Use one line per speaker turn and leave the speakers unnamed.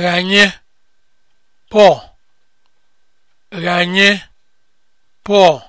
ghanye pọl ghanye pọl